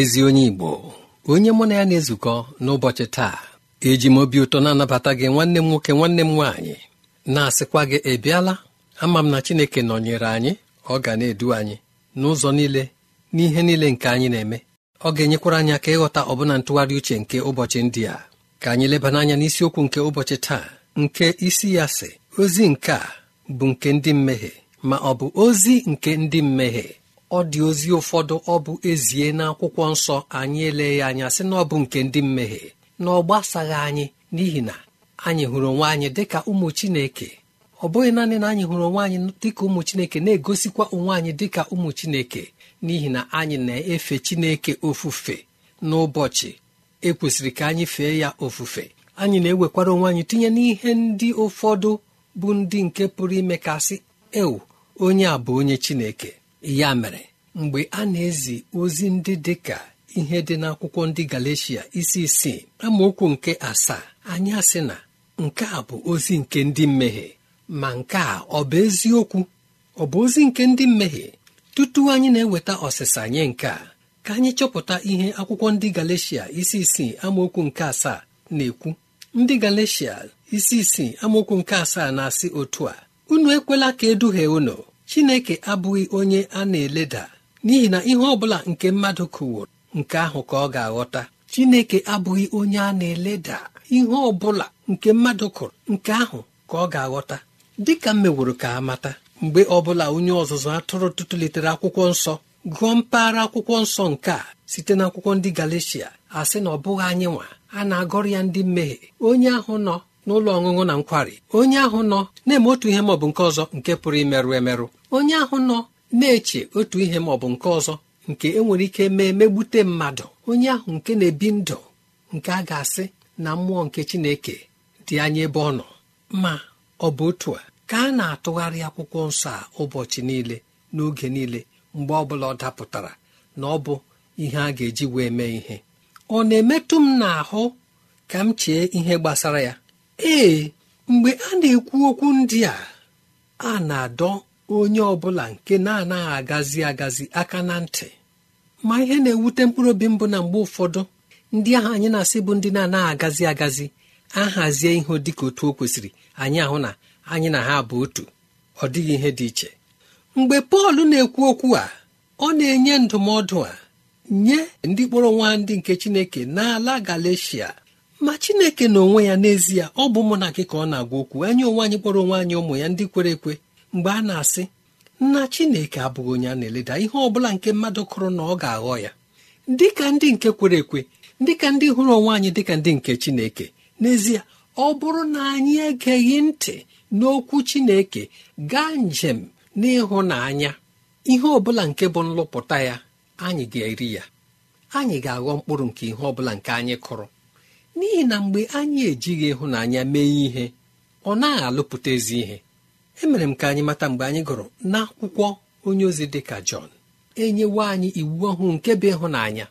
ezi onye Igbo onye mụ na ya na-ezukọ n'ụbọchị taa eji m obi ụtọ na-anabata gị nwanne m nwoke nwanne m nwaanyị na-asịkwa gị ebiala ama m na Chineke nọnyere anyị ọ ga na-edu anyị n'ụzọ niile n'ihe niile nke anyị na-eme ọ ga-enyekwara anyị aka ịghọta ọbụna ntụgharị uche nke ụbọchị ndị a ka anyị lebana anya n'isiokwu nke ụbọchị taa nke isi ya si. ozi nke a bụ nke ndị mmehie ma ọ bụ ozi nke ndị mmehie ọ dị ozi ụfọdụ ọ bụ ezie n'akwụkwọ nsọ anyị ele ya anya sị na ọ bụ nke ndị mmehie na ọ gbasaghị anyị n'ihi na anyị hụrụ onwe anyị dịka ụmụ chineke ọ bụghị naanị na anyị hụrụ onwe anyị dịka ụmụ chineke na-egosikwa onwe anyị dịka ụmụ chineke n'ihi na anyị na-efe chineke ofufe n'ụbọchị ekwesịrị ka anyị fee ya ofufe anyị na-ewekwara onwe anyị tinye n'ihe ndị ụfọdụ bụ ndị nke pụrụ ime kasị ewu onye a bụ onye chineke ya mere mgbe a na-ezi ozi ndị dị ka ihe dị n'akwụkwọ ndị Galeshia isi isii amaokwu nke asaa anyị asị na nke a bụ ozi nke ndị mmehie ma nke a ọ bụ eziokwu ọ bụ ozi nke ndị mmehie tutu anyị na-eweta ọsịsa nye nke a ka anyị chọpụta ihe akwụkwọ ndị Galeshia isi isii amaokwu nke asaa na-ekwu ndị Galeshia isi isii amaokwu nke asaa na-asị otu a unu ekwela ka eduhie unu chineke abụghị onye a na-eleda n'ihi na ihe ọ bụla nke mmadụ kụwụrụ nke ahụ ka ọ ga-aghọta chineke abụghị onye a na-eleda ihe ọ bụla nke mmadụ kụrụ nke ahụ ka ọ ga-aghọta dị ka m meworo ka amata mgbe ọ bụla onye ọzụzụ atụrụ tụtụlitere akwụkwọ nsọ gụọ mpaghara akwụkwọ nsọ nke a site n'akwụkwọ ndị galicia a sị na ọ bụghị anyị nwa a na-agọrọ ya ndị mmehie onye ahụ nọ n'ụlọ ọṅụṅụ na nkwari onye ahụ nọ na-eme otu ihe maọbụ nke ọzọ nke pụrụ imerụ emerụ onye ahụ nọ na-eche otu ihe maọbụ nke ọzọ nke enwere ike mee megbute mmadụ onye ahụ nke na-ebi ndụ nke a ga-asị na mmụọ nke chineke dị anya ebe ọ nọ ma ọ bụ otu a ka a na-atụgharị akwụkwọ nsọ a ụbọchị niile n'oge niile mgbe ọ bụla ọ dapụtara na ọ bụ ihe a ga-eji wee mee ihe ọ na-emetụ m n'ahụ ka m chee ihe gbasara ya ee mgbe a na-ekwu okwu ndị a a na-adọ onye ọbụla nke na-anaghị agazi agazi aka na ntị ma ihe na-ewute mkpụrụ obi mbụ na mgbe ụfọdụ ndị ahụ anyị na-asị bụ ndị na-anaghị agazi agazi ahazie ihe ka otu o kwesịrị anyị ahụ na anyị na ha bụ otu ọ dịghị ihe dị iche mgbe pọl na-ekwu okwu a ọ na-enye ndụmọdụ a nye ndị kpọrọ nwa ndị nke chineke n'ala galacia ma chineke na onwe ya n'ezie ọ bụ mụ na gị ka ọ na-agwa okwu anyị onwe anyị kpọrọ onwe anyị ụmụ ya ndị kwere ekwe mgbe a na-asị nna chineke abụghị onye a na-eleda ihe ọ bụla nke mmadụ kụrụ na ọ ga-aghọ ya dị ka ndị nke kwere ekwe dị ka ndị hụrụ onwe anyị dị ka ndị nke chineke n'ezie ọ bụrụ na anyị egeghị ntị n'okwu chineke gaa njem n'ịhụnanya ihe ọ bụla nke bụ nlụpụta ya anyị ga-eri ya anyị ga-aghọ mkpụrụ nke ihe ọ bụla nke anyị kụrụ n'ihi na mgbe anyị ejighị ịhụnanya mee ihe ọ naghị alụpụta ezi ihe emere m ka anyị mata mgbe anyị gụrụ n'akwụkwọ onye ozi dị ka jọn enyewo anyị iwu ọhụụ nke bụ ịhụnanya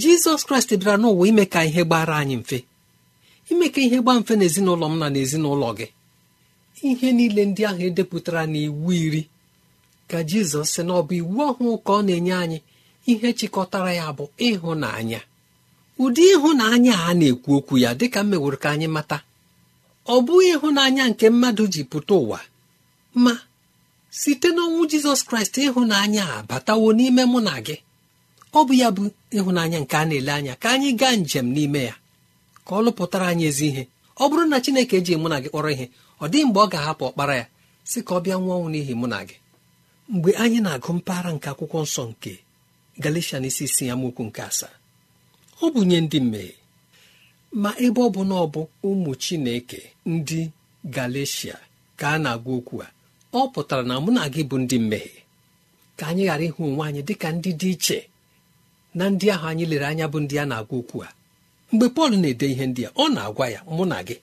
jizọs kraịst bịara n'ụwa ime ka ihe gbara anyị mfe ime ka ihe gbaa mfe n'ezinụlọ m na n'ezinụlọ gị ihe niile ndị ahụ edepụtara na iwu iri ka jizọs sị na ọ bụ iwu ọhụụ ka ọ na-enye anyị ihe chịkọtara ya bụ ịhụnanya ụdị ịhụnanya a na-ekwu okwu ya dịka m meworo ka anyị mata ọ bụghị ịhụnanya nke mmadụ ji pụta ụwa ma site n'ọnwụ jizọs kraịst ịhụnanya a batawo n'ime mụ na gị ọ bụ ya bụ ịhụnanya nke a na-ele anya ka anyị gaa njem n'ime ya ka ọ lụpụtara anyị ezi ihe ọ bụrụ na chineke eji mụ na gị kpọrọ ihe ọ dịghị mgbe ọ ga-ahapụ ọkpara ya si ka ọ bịa nwụọ ọnwụ n'ihi mụ na gị mgbe anyị na-agụ mpaghara nke akwụkwọ nsọ nke galatian isi isi ya mokwu nke asaa ọ bụ nye ndị mmehie ma ebe ọ bụ na ọ bụ ụmụ chineke ndị galecia ka a na-agwa okwu a ọ pụtara na mụ na gị bụ ndị mmehie ka anyị ghara ịhụ onwe anyị dịka ndị dị iche na ndị ahụ anyị lere anya bụ ndị a na-agwa okwu a mgbe pọl na-ede ihe ndị a ọ na-agwa ya mụ na gị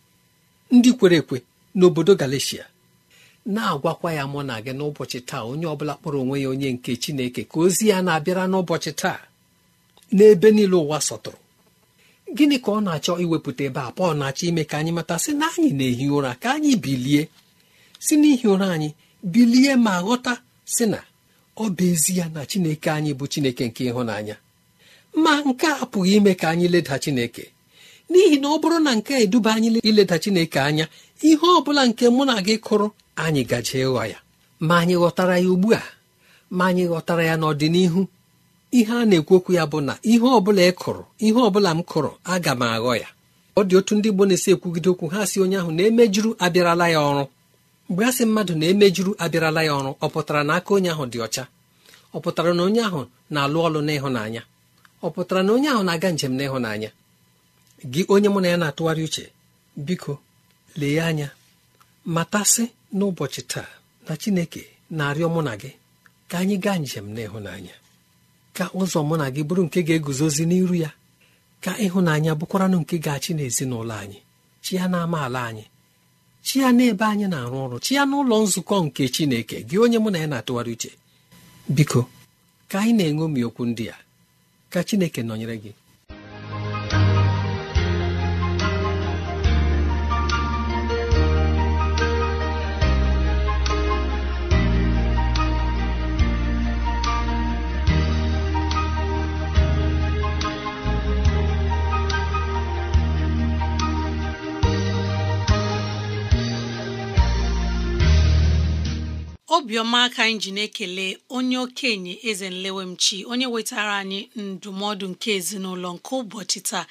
ndị kwere ekwe n'obodo galeshia na-agwakwa ya mụ na gị n'ụbọchị taa onye bụla kpọrọ onwe ya onye nke chineke ka ozi ya na-abịara n'ụbọchị taa n'ebe niile ụwa sọtụrụ gịnị ka ọ na-achọ iwepụta ebe a pọl na-achọ ime ka anyị mata sị na anyị na-ehi ụra ka anyị bilie si n'ihi ụra anyị bilie ma ghọta sị na ọ bụ ezi ya na chineke anyị bụ chineke nke ịhụnanya ma nke a apụghị ime ka anyị leda chineke n'ihi na ọ bụrụ na nke eduba anyị ileda chineke anya ihe ọ bụla nke mụ na gị kụrụ anyị gaje ịghọ ya ma anyị ghọtara ya ugbu a ma anyị ghọtara ya n'ọdịnihu ihe a na-ekwu okwu ya bụ na ihe ọbụla ị kụrụ ihe ọbụla m kụrụ aga m aghọ ya ọ dị otu ndị Igbo na-esi ekwugide okwu ha si onye ahụ na-emejuru abịarala ya ọrụ mgbe a sị mmadụ na-emejuru abịarala ya ọrụ ọ pụtara na aka onye ahụ dị ọcha ọ pụtara na onye ahụ na-alụ ọlụ n'ịhụnanya ọ pụtara na onye ahụ na-aga njem n'ịhụnanya gị onye mụ na ya na-atụgharị uche biko lee anya matasị n'ụbọchị taa na Chineke na-arịọ mụ na gị ka anyị gaa njem n'ịhụnanya ka ụzọ mụ na gị bụrụ nke ga-eguzozi n'iru ya ka ịhụnanya bụkwaranụ nke ga-achị n'ezinụlọ anyị chi ya na ala anyị chi ya n'ebe anyị na-arụ ọrụ chi ya n'ụlọ nzukọ nke Chineke gị onye mụ na ya na-atụgharị uche biko ka anyị na enwe okwu ndị a ka Chineke nọnyere gị obiọma aka anyị ji na-ekele onye okenye eze nlewemchi onye wetara anyị ndụmọdụ nke ezinụlọ nke ụbọchị taa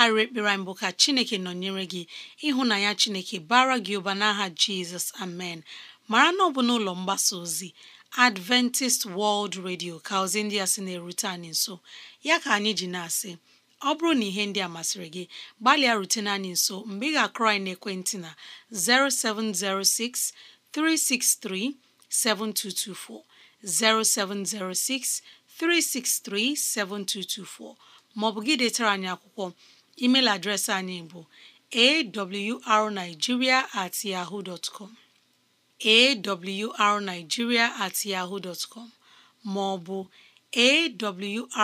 arịrị ekpere anyị bụ ka chineke nọnyere gị ịhụnanya chineke bara gị ụba n'aha jizọs amen mara na ọ bụ n'ụlọ mgbasa ozi adventist world radio ka ozi ndị a sị na-erute anyị nso ya ka anyị ji na-asị ọ bụrụ na ihe ndị a masịrị gị gbalịa rutene anyị nso mgbe ị ga-akụrọ anyị n'ekwentị na 0706 363 7224 0706 363 7224 maọbụ gị detara anyị akwụkwọ email adreesị anyị bụ awrnigeria at yahoo dot com awrnigeria at maọbụ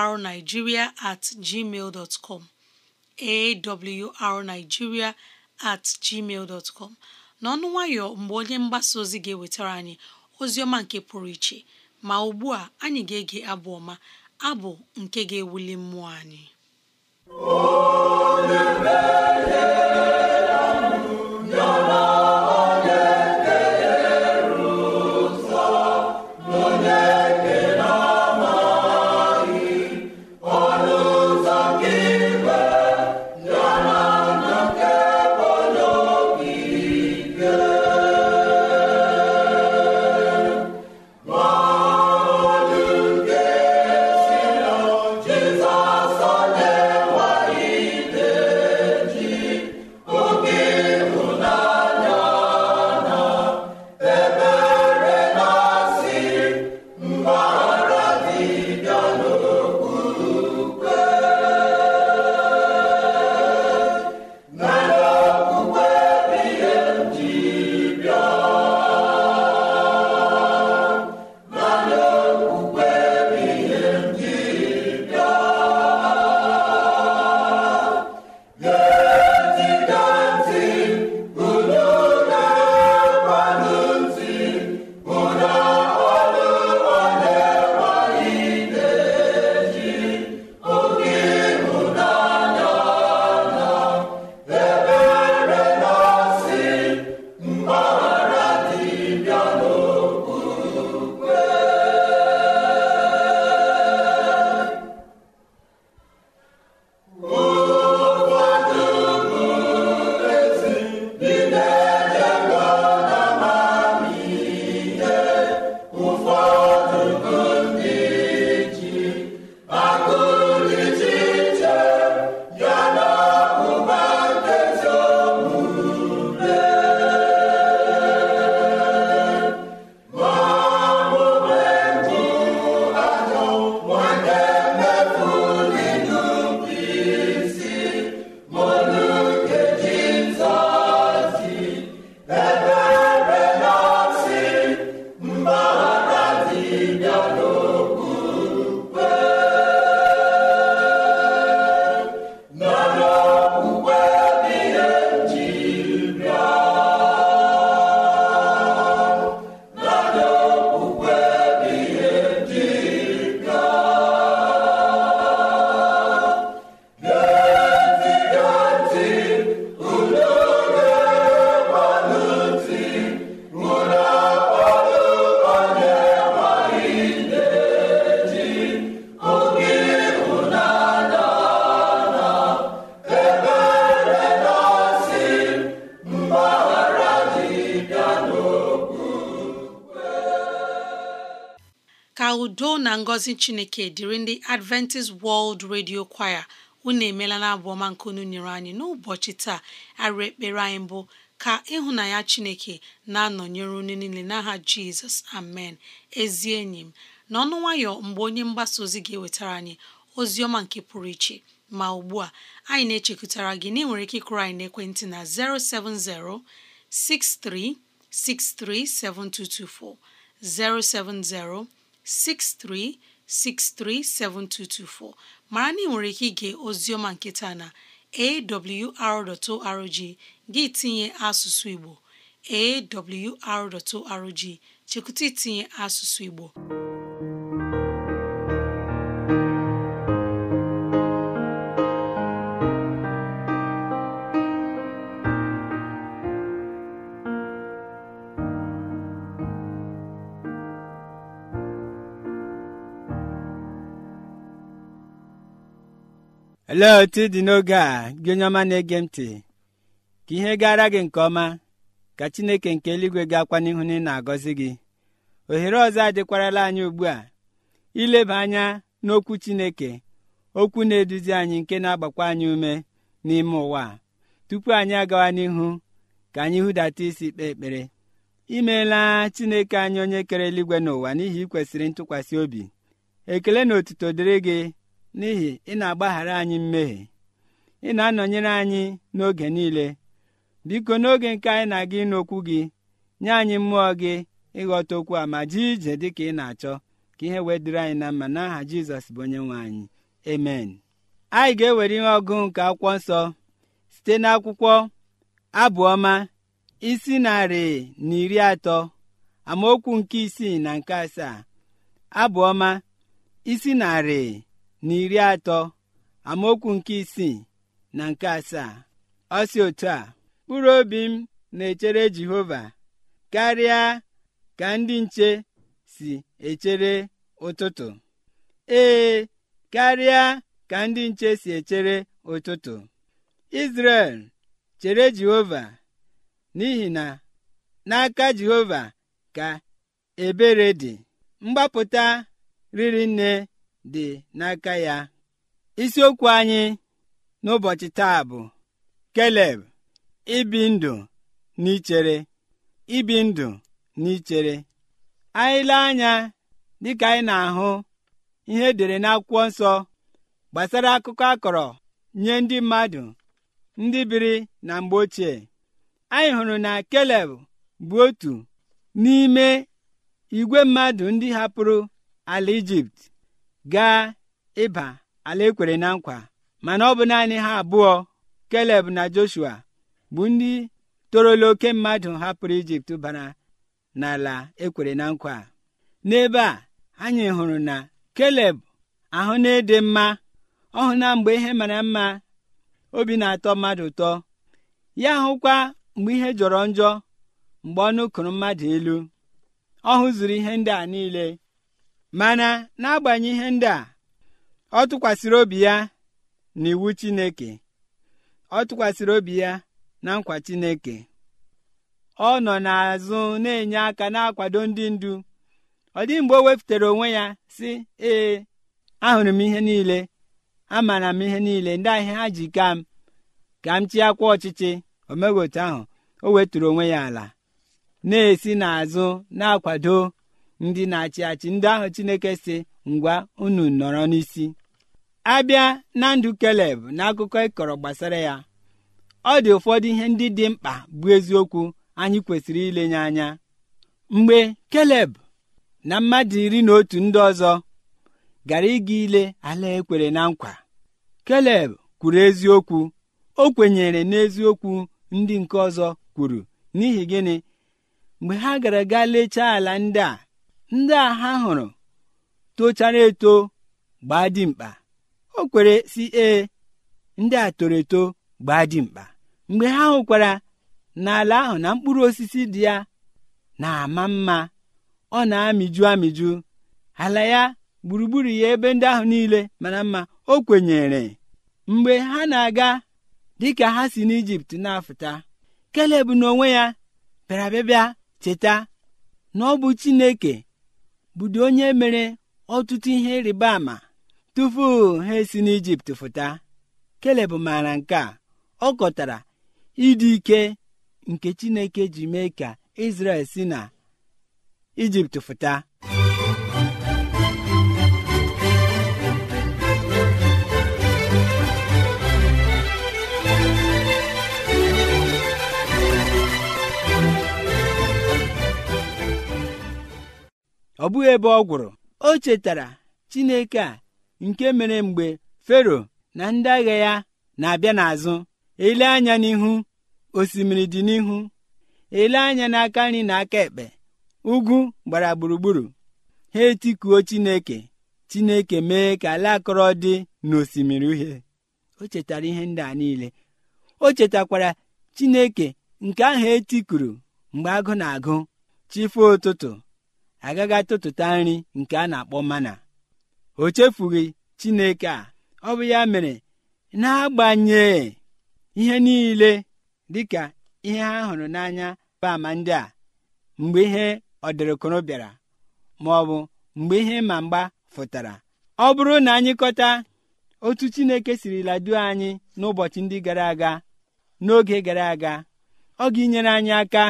awrnigeria at gmail dot com awrnigeria gmail dot com n'ọnụ nwayọ mgbe onye mgbasa ozi ga-ewetara anyị oziọma nke pụrụ iche ma ugbu a anyị ga-ege abụ ọma abụ nke ga-ewuli mmụọ anyị ngọzi chineke dịrị ndị adventist world radio choir unu emeela na abụọma ọma nke unu nyere anyị n'ụbọchị taa arụ ekpere anyị mbụ ka ịhụnanya chineke na-anọnyere unu niile n'aha jizọs amen ezi enyi m n'ọnụ nwayọ mgbe onye mgbasa ozi ga-ewetara anyị ozi ọma nke pụrụ iche ma ugbu a anyị na-echekwutara gị na ịnwere ike ịkụrụ anyị n'ekwentị na 070 7224 070 63 637224 mara na ị nwere ike ige ozioma nketa na awr.org gị tinye asụsụ Igbo awr.org chekwụta itinye asụsụ Igbo olee otu dị n'oge a gị onye ọma na-ege ntị ka ihe gara gị nke ọma ka chineke nke eluigwe ga-akwa n'ihu na ị na-agọzi gị ohere ọzọ adịkwarala anyị ugbu a ileba anya n'okwu chineke okwu na-eduzi anyị nke na-agbakwa anyị ume n'ime ụwa tupu anyị agawa n'ihu ka anyị hụdata isi kpee ekpere imeela chineke anyị onye kere eluigwe n'ụwa n'ihi ikwesịrị ntụkwasị obi ekele na otuto dịrị gị n'ihi ị na-agbaghara anyị mmehie ị na-anọnyere anyị n'oge niile biko n'oge nke anyị na-aga ịnụ okwu gị nye anyị mmụọ gị ịghọta okwu a ma jee ije dị ka ị na-achọ ka ihe wee dịrị anyị na mma n'aha jizọs bụ onye nwe anyị amen anyị ga-ewere ihe ọgụ nke akwụkwọ nsọ site n'akwụkwọ abụọma isi narị na iri atọ amaokwu nke isii na nke asaa abụọma isi narị na iri atọ amaokwu nke isii na nke asaa ọ si otu a mkpụrụ obi m na-echere jehova karịa ka ndị nche si echere ụtụtụ ee karịa ka ndị nche si echere ụtụtụ izrel chere jehova n'ihi na n'aka jehova ka ebere dị mgbapụta riri nne dị n'aka ya isiokwu anyị n'ụbọchị taa bụ keleb ibi ndụ ichere ibi ndụ n'ichere ichere anya dịka anyị na-ahụ ihe edere n'akwụkwọ nsọ gbasara akụkọ akọrọ nye ndị mmadụ ndị biri na mgbe ochie anyị hụrụ na keleb bụ otu n'ime igwe mmadụ ndị hapụrụ ala ijipt gaa ịba ala ekwere na nkwa mana ọ bụ naanị ha abụọ keleb na joshua bụ ndị torola oke mmadụ hapụrụ ijipt bara n'ala ekwere na nkwa n'ebe a anyị hụrụ na keleb ahụ na-ede mma ọhụ na mgbe ihe mara mma obi na-atọ mmadụ ụtọ ya hụkwa mgbe ihe jọrọ njọ mgbe ọ nụkụrụ mmadụ elu ọ hụzuru ihe ndị a niile mana n'agbanyeghị ihe ndị a ọ tụkwasịrị obi ya na iwu chineke ọ tụkwasịrị obi ya na nkwa chineke ọ nọ n'azụ na-enye aka na-akwado ndị ndu ọ dị mgbe o wepụtara onwe ya sị ee ahụrụ m ihe niile amara m ihe niile ndị ahịa ha ji ka m ka m chịakwa ọchịchị omegotu ahụ o wetụrụ onwe ya ala na-esi n'azụ na-akwado ndị na-achị achị ndị ahụ chineke si ngwa unu nọrọ n'isi abịa na ndụ keleb na akụkọ ịkọrọ gbasara ya ọ dị ụfọdụ ihe ndị dị mkpa bụ eziokwu anyị kwesịrị ilenye anya mgbe keleb na mmadụ iri na otu ndị ọzọ gara ịga ile ala ekwere na nkwa keleb kwuru eziokwu o kwenyere n'eziokwu ndị nke ọzọ kwuru n'ihi gịnị mgbe ha gara gaa lechaa ala ndị a ndị a ha hụrụ tochara eto gbaa dimkpa o kwere si ee ndị a toro eto gbaa dimkpa mgbe ha hụkwara n'ala ahụ na mkpụrụ osisi dị ya na-ama mma ọ na-amịju amịju ala ya gburugburu ya ebe ndị ahụ niile mana mma o kwenyere mgbe ha na-aga dị ka ha si n'ijipt na-afụta keleb n'onwe ya bịara bịa cheta na ọ bụ chineke bụdị onye mere ọtụtụ ihe ịrịba ama tupu ha esi n'Ijipt fụta keleb maara nke a ọ kọtara ịdị ike nke Chineke ji mee ka isrel si na Ijipt fụta ọ bụghị ebe ọ gwụrụ o chetara chineke a nke mere mgbe fero na ndị agha ya na-abịa n'azụ ele anya n'ihu osimiri dị n'ihu ele anya n'aka nri na aka ekpe ugwu gbara gburugburu ha etikuo chineke chineke mee ka ala akọrọ dị n'osimiri uhie o chetara ihe ndị a niile o chetakwara chineke nke ahụ etikuru mgbe agụ na-agụ chife ụtụtụ agaghị atụtụta nri nke a na-akpọ mana o chefughị chineke a ọ bụ ya mere na n'agbanyeghị ihe niile dịka ihe ha hụrụ n'anya ama ndị a mgbe ihe ọdịrịkụrụ bịara ma ọ bụ mgbe ihe ma mgba fụtara ọ bụrụ na anyị kọta otu chineke sirila duo anyị n'ụbọchị ndị gara aga n'oge gara aga ọ ga enyere anyị aka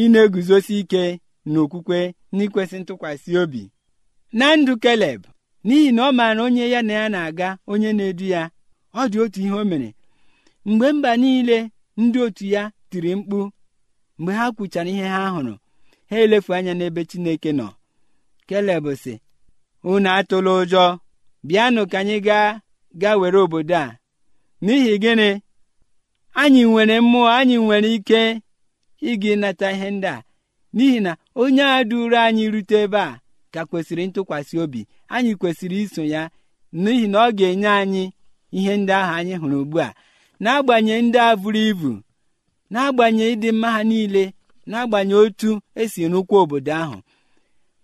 ị na-eguzosi ike n'okwukwe n'ikwesị ntụkwasị obi na ndụ keleb n'ihi na ọ maara onye ya na ya na-aga onye na-edu ya ọ dị otu ihe o mere mgbe mba niile ndị otu ya tiri mkpu mgbe ha kwuchara ihe ha hụrụ ha elefu anya n'ebe chineke nọ keleb sị unu atụla ụjọ bịanụ ka anyị gaa gaa were obodo a n'ihi gịnị anyị nwere mmụọ anyị nwere ike ịga ịnata ihe ndị a n'ihi na onye a duru anyị rute ebe a ka kwesịrị ntụkwasị obi anyị kwesịrị iso ya n'ihi na ọ ga-enye anyị ihe ndị ahụ anyị hụrụ ugbu a n'agbanyeghị ndị a buru ibu n'agbanyeghị ịdị mma ha niile n'agbanyeghị otu esi rụkwa obodo ahụ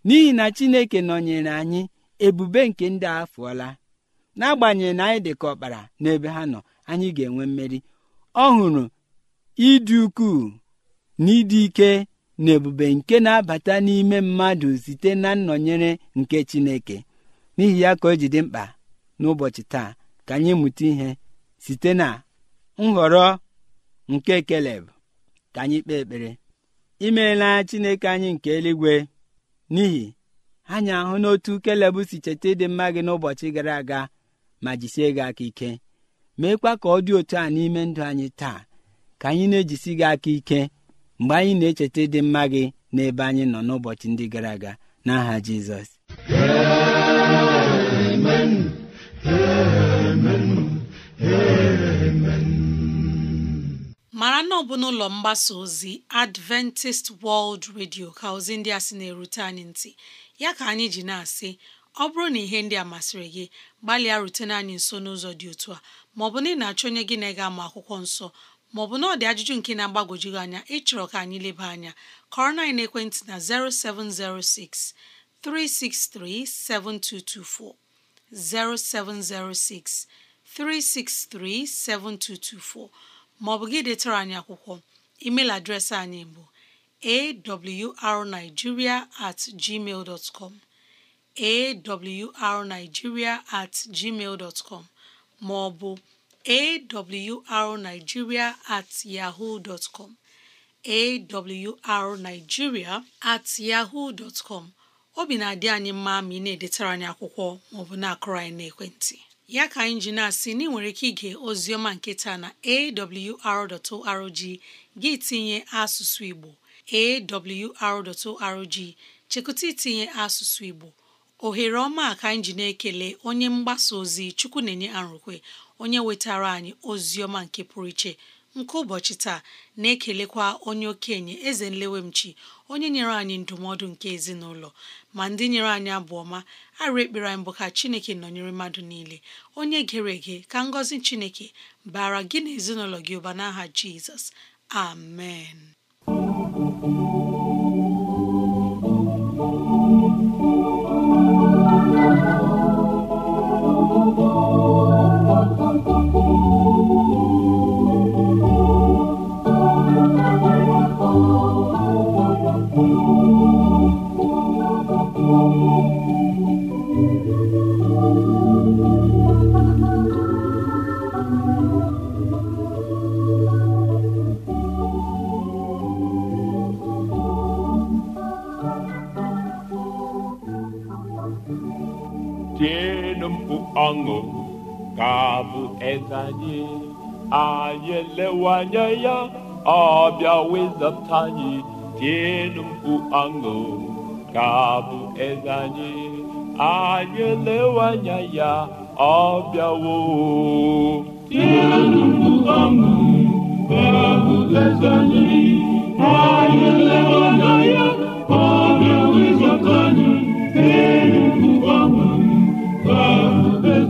n'ihi na chineke nọnyere anyị ebube nke ndị a fụọla n'agbanyeghị na anyị dị ka ọkpara n'ebe ha nọ anyị ga-enwe mmeri ọ hụrụ ịdị ukwuu na ịdị ike na ebube nke na-abata n'ime mmadụ site na nnọnyere nke Chineke n'ihi ya ka o ji dị mkpa n'ụbọchị taa ka anyị mụta ihe site na nhọrọ nke Keleb ka anyị kpee ekpere imeela Chineke anyị nke eluigwe n'ihi anyị ahụ n'otu Keleb si cheta ịdị mma gị n'ụbọchị gara aga ma jisie gị aka ike meekwa ka ọ dị otu a n'ime ndụ anyị taa ka anyị na-ejisi gị aka ike mgbe anyị na-echeta ịdị mma gị n'ebe anyị nọ n'ụbọchị ndị gara aga n'aha jizọs mara na ọ bụ n'ụlọ mgbasa ozi adventist world radio ka ozi ndị a sị na-erute anyị ntị ya ka anyị ji na-asị ọ bụrụ na ihe ndị a masịrị gị gbalịa rutena anyị nso n'ụzọ dị otu a maọbụ na ị na-achọ onye gị na ị ga-ama akwụkwọ nsọ maọbụ na ọ dị ajụjụ nke na-agbagwoju gị anya ịchọrọ ka anyị leba anya kọrọ na ekwentị na 0706 363 7224 0706 363 7224 maọbụ gị detara anyị akwụkwọ email adreesị anyị bụ awrnigeria at gmail dot com awrnigeria at gmail dot com maọbụ awrnigeria at yahoo dot com at yahoo dot com obi na-adị anyị mma ma ị na-edetara anyị akwụkwọ maọbụ na-akụrụ anyị n'ekwentị ya ka anyị ji na-asị na ị nwere ike ige ozioma nke taa na awr.org gị tinye asụsụ Igbo awr.org chekụta itinye asụsụ Igbo ohere ọma ka anyị na-ekele onye mgbasa ozi chukwu na-enye arụkwe onye wetara anyị ozi ọma nke pụrụ iche nke ụbọchị taa na-ekelekwa onye okenye eze nlewemchi onye nyere anyị ndụmọdụ nke ezinụlọ ma ndị nyere anyị abụ ọma arụ ekpere anyị bụ ka chineke nọnyere mmadụ niile onye gere ege ka ngọzi chineke bara gị na gị ụba n'aha jizọs amen ọṅụ ka bụ eze anyị anyị elewe anya ya ọ bịa wezata anyị tienụ mkpu ọṅụ ka bụ anyị anyị anya ya ọ bịawo mkpu ọṅụ ka bụ eze anyị anyị elewe anya ya ọ bịa anyị mkpu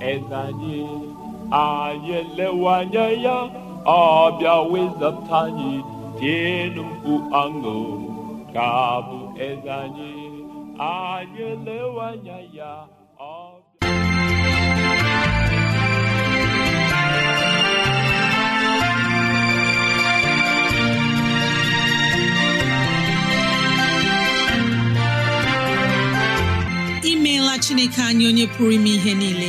Ezanyị anyị anyị elewe anya ya ọ bịa wezata anyị tienụ mkpu aṅụ ka bụ eze anyị anyị elewe anya ya imeela chineke anyị onye pụrụ ime ihe niile